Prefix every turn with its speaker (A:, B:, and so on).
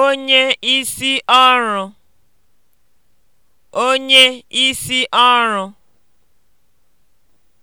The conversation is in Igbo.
A: onye isi ọrụ onye isi ọrụ